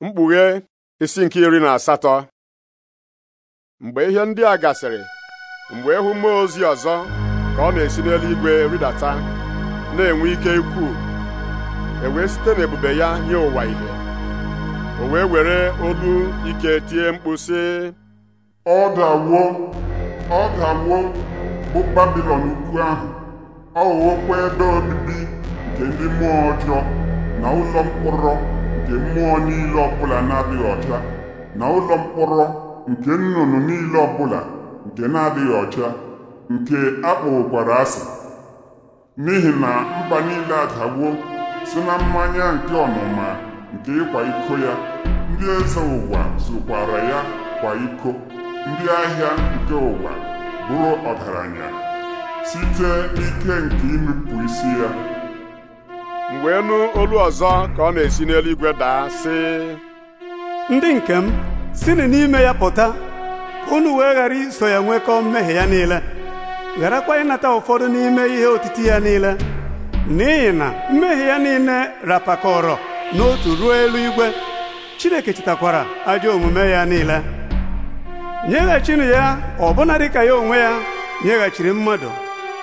mkpughe isi nke iri na asatọ mgbe ihe ndị a gasịrị mgbe ịhụ mmụọ ozi ọzọ ka ọ na-esi n'eluigwe rịdata na-enwe ike ikwu e wee site n'ebube ya nye ụwa ihe o wee were olu ike tie mkpu sị ọ dawuo ọ dawuo bụ babilọn ukwu ahụ ọ ghọọkwa ebe obibi nke ndị mmụọ ọjọọ na ụlọ mkpọrọ nke mmụọ niile ọbụla na-adịghị ọcha na ụlọ mkpọrọ nke nnụnụ niile ọbụla nke na-adịghị ọcha nke akpọwokwara asị n'ihi na mba niile adagbuo si na mmanya nke ọnụma nke ịkwa iko ya ndị eze ụwa zụkwara ya kwa iko ndị ahịa nke ụwa bụrụ ọgaranya site n'ike nke inupụ isi ya mgbe wee nụ olu ọzọ ka ọ na-esi n'eluigwe daa sị ndị nke m sinụ n'ime ya pụta unu wee ghara iso ya nwekọọ mmehie ya niile gharakwa ịnata ụfọdụ n'ime ihe otiti ya niile n'ihi na mmehie ya niile rapakọrọ n'otu ruo eluigwe Chineke chetakwara ajọ omume ya niile nyeghachinu ya ọbụna dịka ya onwe ya nyeghachiri mmadụ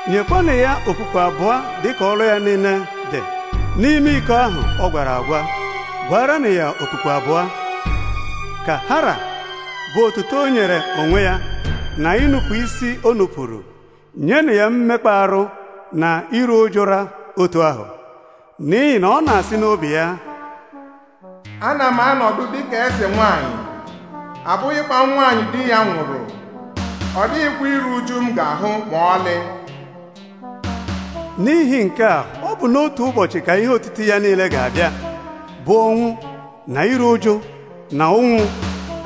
nyekwanụ ya okpukpe abụọ dịka ọrụ ya niile n'ime iko ahụ ọ gwara agwa na ya okpukpe abụọ ka hara bụ otuto o nyere onwe ya na ịnụpụ isi o nupụrụ na ya mmekpa arụ na iru ụjụra otu ahụ n'ihi na ọ na-asị n'obi ya ana m anọdụ dị ka eze nwanyị abụghịkwa nwanyị di ya nwụrụ ọ iru uju m ga-ahụ ma ọlị n'ihi nke a ọ bụ n'otu ụbọchị ka ihe otiti ya niile ga-abịa bụ ọnwụ na iru ụjụ na ụnwụ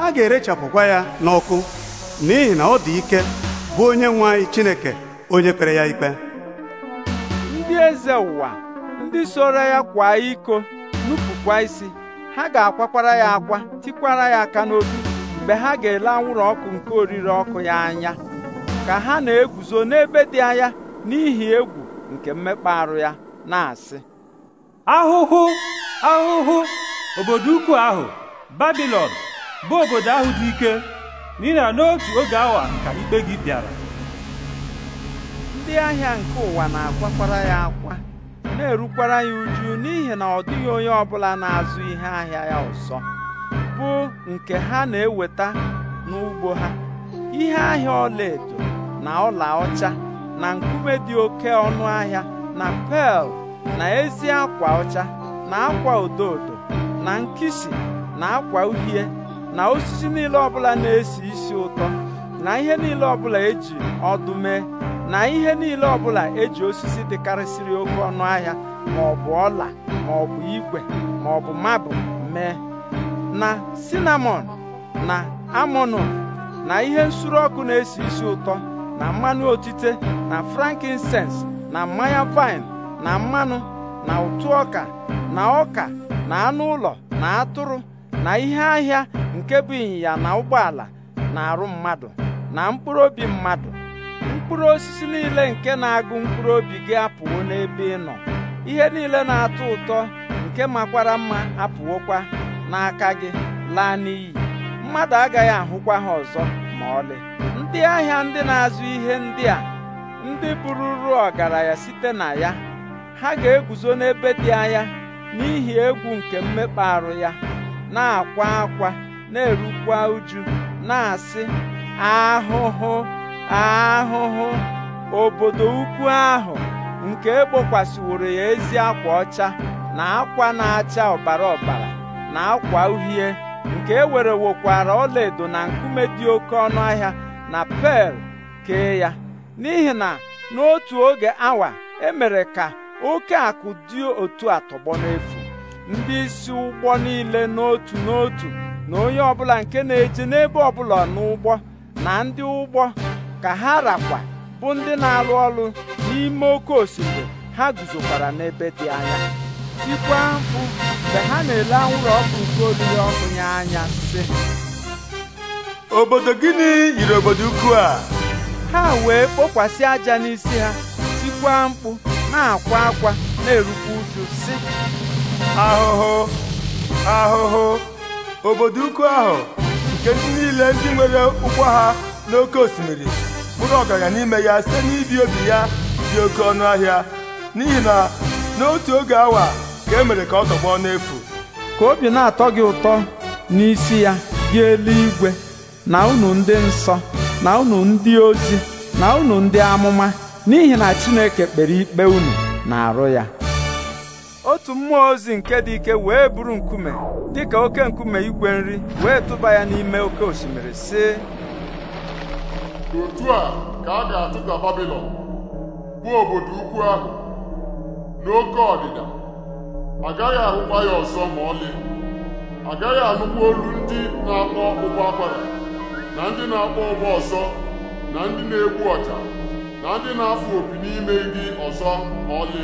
a ga-erechapụkwa ya n'ọkụ n'ihi na ọ dị ike bụ onye nwe anyị Chineke onye kpere ya ikpe ndị eze ụwa ndị soro ya kwa iko nupụkwa isi ha ga-akwakwara ya akwa tikwara ya aka n'obi mgbe ha ga-ele anwụrụ ọkụ nke oriri ọkụ ya anya ka ha na-eguzo n'ebe dị anya n'ihi egwu nke mmekpa arụ ya na-asị ahụhụ ahụhụ obodo ukwu ahụ babilon bụ obodo ahụ dị ike n'ihi na n'otu oge awa ka ikpe gị bịara ndị ahịa nke ụwa na-akwakwara ya akwa na-erukwara ya uju n'ihi na ọ dịghị onye ọbụla na-azụ ihe ahịa ya ọzọ bụ nke ha na-eweta n'ugbo ha ihe ahịa ọlaedo na ọla ọcha na nkume dị oke ọnụ ahịa na pel na ezi akwa ọcha na akwa odo odo na nkịsị na akwa uhie na osisi niile ọbụla na-esi isi ụtọ na ihe niile ọbụla eji ọdụ mee na ihe niile ọbụla eji osisi dịkarịsịrị oke ọnụ ahịa ma ọ bụ ọla ma ọ bụ igwe ma ọ bụ mabụ mee na sinamọn na amonu na ihe nsuru ọkụ na-esi isi ụtọ na mmanụ otite na frankincense na mmanya vaịn na mmanụ na ụtụ ọka na ọka na anụ ụlọ na atụrụ na ihe ahịa nke bụ ịnyịnya na ụgbọala na arụ mmadụ na mkpụrụ obi mmadụ mkpụrụ osisi niile nke na-agụ mkpụrụ obi gị apụwo n'ebe ị nọ ihe niile na-atọ ụtọ nke makwara mma apụwokwa n'aka gị laa n'iyi mmadụ agaghị ahụkwa ha ọzọ ma ọlị ndị ahịa ndị na-azụ ihe ndị a ndị bụrụrụ ọgaranya site na ya ha ga-eguzo n'ebe dị anya n'ihi egwu nke mmekpa arụ ya na-akwa akwa na-erukwa uju na-asị ahụhụ ahụhụ obodo ukwu ahụ nke ekpokwasịworo ya ezi akwa ọcha na akwa na-acha ọbara ọbara na akwa uhie nke e wokwara ọlaedo na nkume dị oke ọnụ ahịa na pel kee ya n'ihi na n'otu oge awa e mere ka oke akụ dị otu a tọgbọ n'efu ndị isi ụgbọ niile n'otu n'otu na onye ọbụla nke na-eje n'ebe ọbụla n'ụgbọ na ndị ụgbọ ka ha rakwa bụ ndị na alụ ọrụ n'ime oke osimiri ha guzokwara n'ebe dị anya tikwa mkpu mgbe ha na-ele anwụrụ ọkụ nke olili ọkụ ya anya sị obodo gịnị yiri obodo ukwu a ha wee kpokwasị aja n'isi ha tikwaa mkpu na-akwa akwa na-erukwa uju si ahụhụ ahụhụ obodo ukwu ahụ nke ndị niile ndị nwere ụgwọ ha n'oke osimiri bụrụ ọgaranya n'ime ya site n'ibi obi ya dị oke ọnụ ahịa n'ihi na n'otu oge awa ka e mere ka ọ tọgbọ n'efu ka obi na-atọ gị ụtọ n'isi ya gị eluigwe na unu ndị nsọ na unu ndị ozi na unu ndị amụma n'ihi na Chineke kpere ikpe unu na-arụ ya otu mmụọ ozi nke dị ike wee buru nkume dị ka oke nkume igwe nri wee tụba ya n'ime oke osimiri sị otu a ka a ga atụta Babilọn bụ obodo ukwu ahụ n'oke ọdịda agaghị ahụkwa ya ọzọ ma ọlị agaghị anụkwa olu ndị na-akpọ ụgbọ akwara na ndị na-akpọ ụgbọ ọsọ na ndị na-egbu ọja na ndị na-afụ opi n'ime gị ọzọ ma ọlị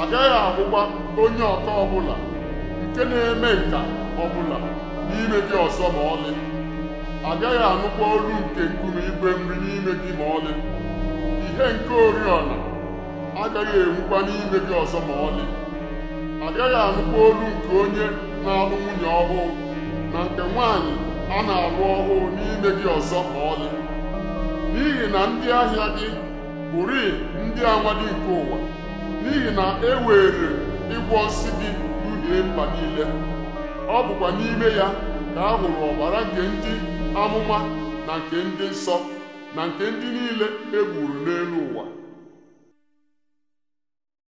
agaghị ahụkwa onye ọka ọbụla nke na-eme nka ọbụla n'ime gị ọzọ ma ọlị agaghị anụkwa olu nke nkume igwe nri n'ime gị ma ọlị ihe nke oriọna agaghị enwukwa n'ime gị ọzọ ma ọlị agaghị anụkwa olu nke onye na-alụ nwunye ọhụụ ọ na-arụ ọhụụ n'ime gị ọzọ ma ọlị n'ihi na ndị ahịa gị bụri ndị amadi nke ụwa n'ihi na e were ịgwọ nsị gị duhie mba niile ọ bụkwa n'ime ya ka a hụrụ ọbara nke ndị amụma na nke ndị nsọ na nke ndị niile e n'elu ụwa